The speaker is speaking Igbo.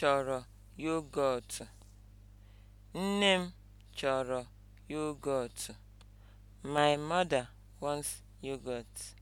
chọrọ yogọt. Nne m chọrọ yogọt. My mother wants yogurt.